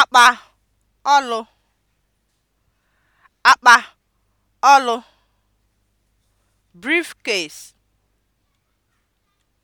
akpa ọlụ akpa ọlụ (briefcase)